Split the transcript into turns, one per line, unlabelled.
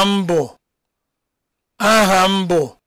aha m bụ aha m bụ